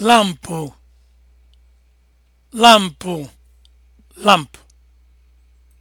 lampu lampu lampu.